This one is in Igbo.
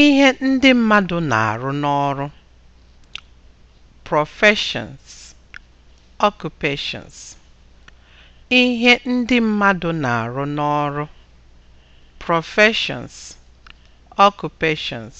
ihe ndị mmadụ na-arụ n'ọrụ professions occupations ihe ndị mmadụ na-arụ n'ọrụ professions occupations